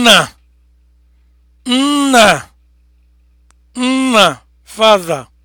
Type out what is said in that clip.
nna nna nna father